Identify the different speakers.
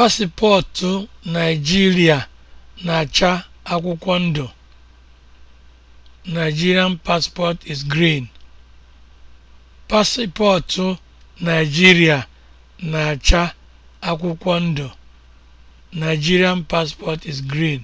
Speaker 1: Paspọtụ Naijiria na-acha akwụkwọ ndụ (Nigerian passport is green) na-acha akwụkwọ ndụ (Nigerian passport is green)